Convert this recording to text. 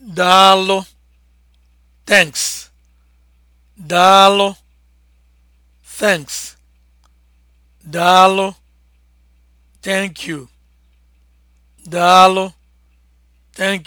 daalo thanks daalo thanks daalo thank you daalụ thank